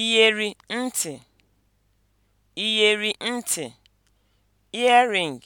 iyeri ntị, iyeri ntị (earring)